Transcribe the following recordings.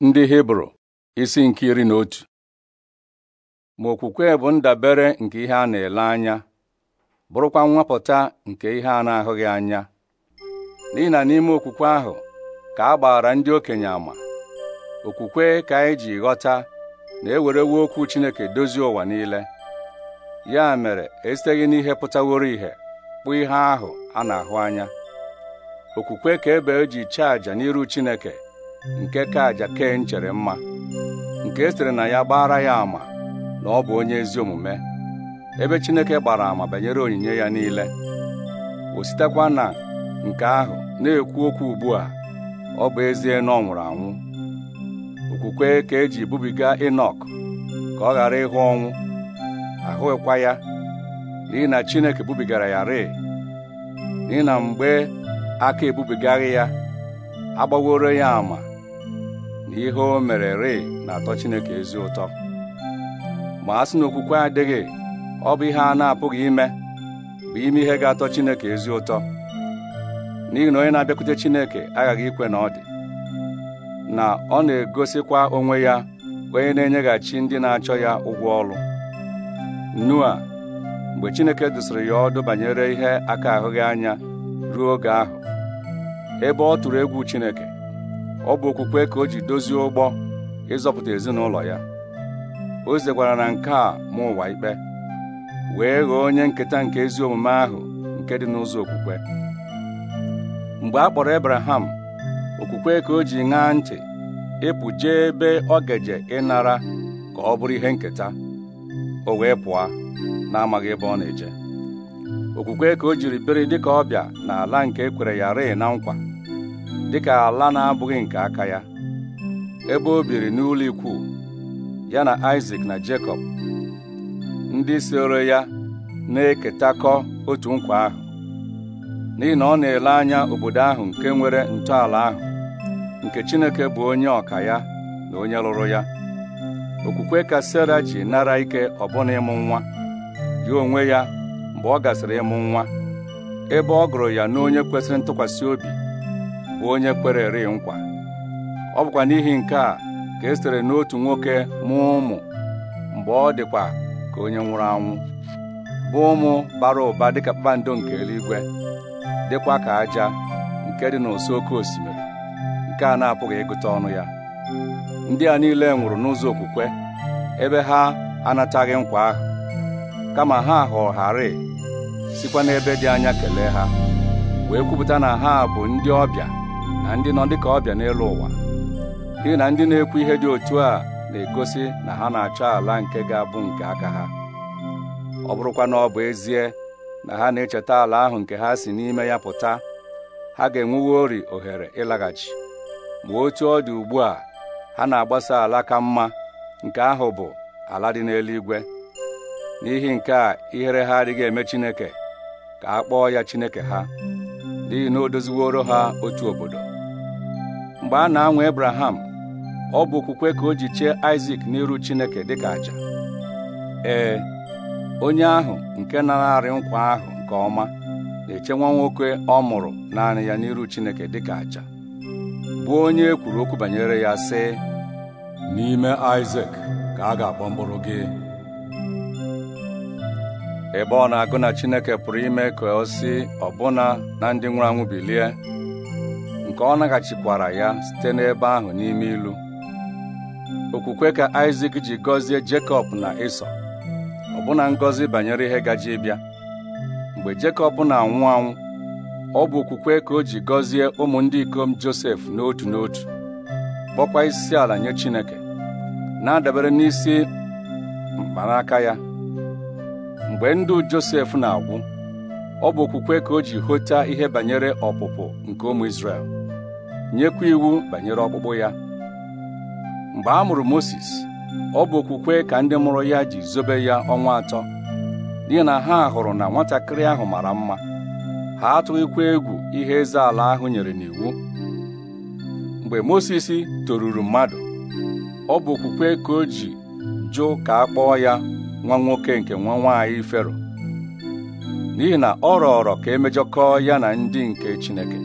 ndị hibru isi nke iri na otu ma okwukwe bụ ndabere nke ihe a na-ele anya bụrụkwa nwapụta nke ihe a na-ahụghị anya n'ihi na n'ime okwukwe ahụ ka a gbara ndị okenye ama okwukwe ka anyị ji ghọta na ewerewo okwu Chineke dozie ụwa niile ya mere esiteghị n'ihe pụtaworo ihe kpụ ihe ahụ a na-ahụ anya okwukwe ka ebe e ji chaja n'iru Chineke nke ka àjà ken chere mma nke e sịrị na ya gbara ya ama. na ọ bụ onye ezi omume ebe Chineke gbara ama banyere onyinye ya niile o sitekwa na nke ahụ na-ekwu okwu ugbu a ọ bụ ezie na ọ nwụrụ anwụ okwukwe ka eji bubiga Enọk ka ọ ghara ịhụ ọnwụ ahụghịkwa ya n'ihi na Chineke bubigara ya rịị n'ihi na mgbe aka ebubigaghị ya agbaworo ya ama ihe o mere rịị na-atọ Chineke ezi ụtọ ma a sị na okwukwe adịghị ọ bụ ihe a na-apụghị ime bụ ime ihe ga-atọ Chineke ezi ụtọ n'ihi na onye na-abịakwute Chineke aghaghị ikwe na ọ dị na ọ na-egosikwa onwe ya onye na-enyeghachi ndị na-achọ ya ụgwọ ọrụ Noa mgbe Chineke dụsịrị ya ọdụ banyere ihe aka ahụghị anya ruo oge ahụ ebe ọ tụrụ egwu Chineke ọ bụ okwukwe ka o ji dozie ụgbọ ịzọpụta ezinụlọ ya o zekwara na nke a ma ụwa ikpe wee ghọọ onye nketa nke ezi omume ahụ nke dị n'ụzọ okwukwe mgbe a kpọrọ ebraham okwukwe ka o ji ṅaa ntị ịpụ jee ebe ọ gaje ịnara ka ọ bụrụ ihe nketa o wee pụọ na-amaghị ebe ọ na-eje okwukwe ka o jiri biri dịka ọbịa na ala nke ekwere ya rịị na nkwa dịka ala na-abụghị nke aka ya ebe o biri n'ụlọ ikwu ya na Isaac na Jacob. ndị soro ya na-eketakọ otu nkwa ahụ n'ihi na ọ na-ele anya obodo ahụ nke nwere ntọala ahụ nke Chineke bụ onye ọka ya na onye lụrụ ya okwukwe ka Sarah ji nara ike ọbụna ịmụ nwa ya onwe ya mgbe ọ gasịrị ịmụ nwa ebe ọ gụrụ ya n'onye kwesịrị ntụkwasị obi bụ onye kpere eri nkwa ọ bụkwa n'ihi nke a ka e n'otu nwoke mụọ ụmụ mgbe ọ dịkwa ka onye nwụrụ anwụ bụ ụmụ bara ụba dịka kpakpando nke eluigwe dịkwa ka aja nke dị n'ụsọ oké osimiri nke a na-apụghị ịgụta ọnụ ya ndị a niile nwụrụ n'ụzọ okwukwe ebe ha anataghị nkwa ahụ kama ha họọgharị sikwa n'ebe dị anya kelee ha wee kwupụta na ha bụ ndị ọbịa na ndị nọ dịka ọbịa n'elu ụwa n'ihi na ndị na-ekwu ihe dị otu a na-egosi na ha na-achọ ala nke ga-abụ nke aka ha ọ bụrụkwa na ọ bụ ezie na ha na-echeta ala ahụ nke ha si n'ime ya pụta ha ga ori ohere ịlaghachi ma otu ọ dị ugbu a ha na-agbasa ala ka mma nke ahụ bụ ala dị n'eluigwe n'ihi nke a ihere ha adịghị eme Chineke ka a kpọọ ya Chineke ha n'ihi na o doziworo ha otu obodo mgbe a na-anwa Ebraham ọ bụ okwukwe ka o ji chee isak n'iru Chineke dị ka aja ee onye ahụ nke na-arị nkwa ahụ nke ọma na-eche nwa nwoke ọ mụrụ naanị ya n'iru Chineke dị ka aja bụ onye e kwuru okwu banyere ya sị n'ime isak ka a ga-akpọ mkpụrụ gị ebe ọ na-agụ na Chineke pụrụ ime ka o si ọbụna na ndị nwụrụ anwụ bilie nke ọ naghachikwara ya site n'ebe ahụ n'ime ilu okwukwe ka isak ji gọzie Jekọb na Ịsọ ọbụna ngọzi banyere ihe gaji ịbịa mgbe Jekọb na-anwụ anwụ ọ bụ okwukwe ka o ji gọzie ụmụ ndị ikom Josef n'otu n'otu kpọkwa isi ala nye Chineke na-adabere n'isi mkpanaka ya mgbe ndụ Josef na-agwụ ọ bụ okwukwe ka o ji hụta ihe banyere ọpụpụ nke ụmụ Izrel nyekwa iwu banyere ọkpụkpụ ya mgbe a mụrụ Mozis ọ bụ okwukwe ka ndị mụrụ ya ji zobe ya ọnwa atọ n'ihi na ha hụrụ na nwatakịrị ahụ mara mma ha atụghịkwa egwu ihe eze ala ahụ nyere n'iwu mgbe Mozis toruru mmadụ ọ bụ okwukwe ka o ji jụ ka a kpọọ ya nwa nwoke nke nwa nwaanyị Fero n'ihi na ọ rọọrọ ka emejọkọọ ya na ndị nke Chineke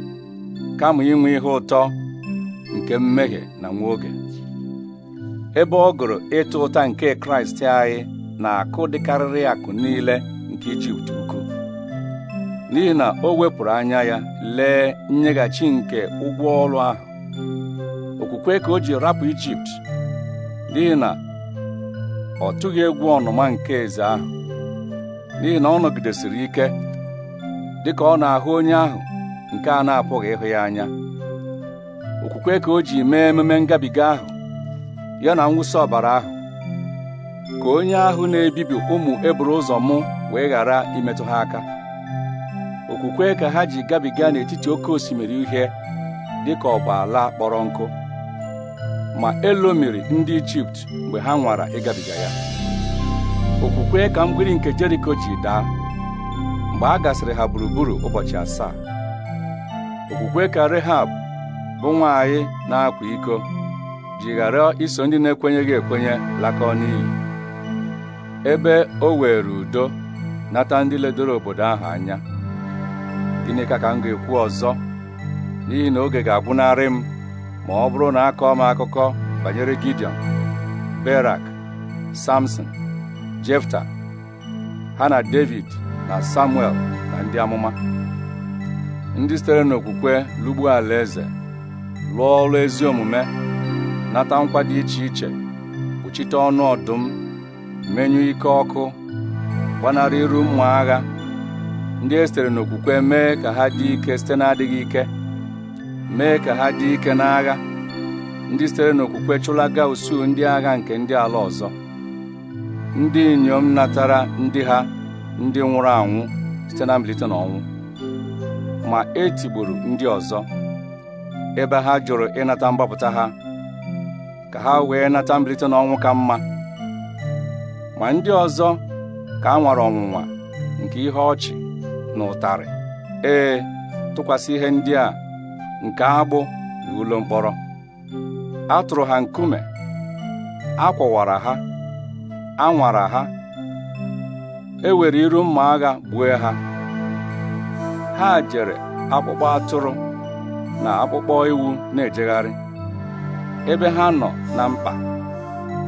kama inwe ihe ụtọ nke mmehie na nwa ebe ọ gụrụ ịta ụta nke kraịst anyị na-akụ dịkarịrị akụ niile nke ijipt ukwu n'ihi na o wepụrụ anya ya lee nyeghachi nke ụgwọ ọrụ ahụ okwukwe ka o ji rapụ ijipt n'ihi na ọ tụghị egwu ọnụma nke eze ahụ n'ihi na ọ nọgidesiri ike dịka ọ na-ahụ onye ahụ nke a na-apụghị ịhụ ya anya okwukwe ka o ji mee ememe ngabiga ahụ ya na nwụsa ọbara ahụ ka onye ahụ na-ebibi ụmụ eburu ụzọ mụ wee ghara imetụ ha aka okwukwe ka ha ji gabiga n'etiti oke osimiri uhie dị ka ọgba ala kpọrọ nkụ ma elomiri ndị ijipt mgbe ha nwara ịgabiga ya okwukwe ka mgbidi nke jeriko ji daa mgbe a gasịrị ha gburugburu ụbọchị asaa okwukwe ka Rehab bụ nwanyị na-akwa iko ji ghara iso ndị na-ekwenyeghị ekwenye lakọ n'iyi ebe o were udo nata ndị ledoro obodo ahụ anya gịnị ka ka m ga-ekwu ọzọ n'ihi na oge ga-agwụnarị m ma ọ bụrụ na kọọ m akụkọ banyere Gideon Berak Samson Jefta ha na David na Samuel na ndị amụma ndị sitere n'okwukwe lụgbuo alaeze lụọ ọrụ ezi omume nata nkwa dị iche iche kpuchite ọnụ ọdụm menyụ ike ọkụ gbanarị iru ụmụ agha ndị e sitere n'okwukwe mee ka ha dị ike site na-adịghị ike mee ka ha dị ike n'agha ndị sitere n'okwukwe chụlaga usuu ndị agha nke ndị ala ọzọ ndị inyom natara ndị ha ndị nwụrụ anwụ site na mbilite n'ọnwụ ma e tigburu ndị ọzọ ebe ha jụrụ ịnata mgbapụta ha ka ha wee nata mbilite n'ọnwụ ka mma ma ndị ọzọ ka a nwara ọnwụnwa nke ihe ọchị na ụtarị ee tụkwasị ihe ndị a nke agbụ na ụlọ mkpọrọ a tụrụ ha nkume a kwọwara ha a nwara ha e were iru mma agha gbue ha ha jere akpụkpọ atụrụ na akpụkpọ ewu na-ejegharị ebe ha nọ na mkpa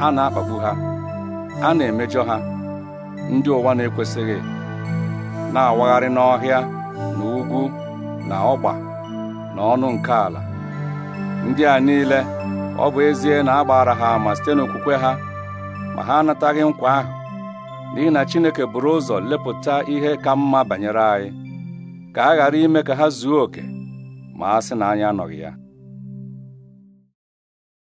a na-akpagbu ha a na-emejọ ha ndị ụwa na-ekwesịghị na-awagharị n'ọhịa na ugwu na ọgba na ọnụ nke ala ndị a niile ọ bụ ezie na agbara ha ama site n'okwukwe ha ma ha anataghị nkwa ahụ n'ihi na Chineke buru ụzọ lepụta ihe ka mma banyere anyị ka a ghara ime ka ha zuo oke ma a sị na anya anọghị ya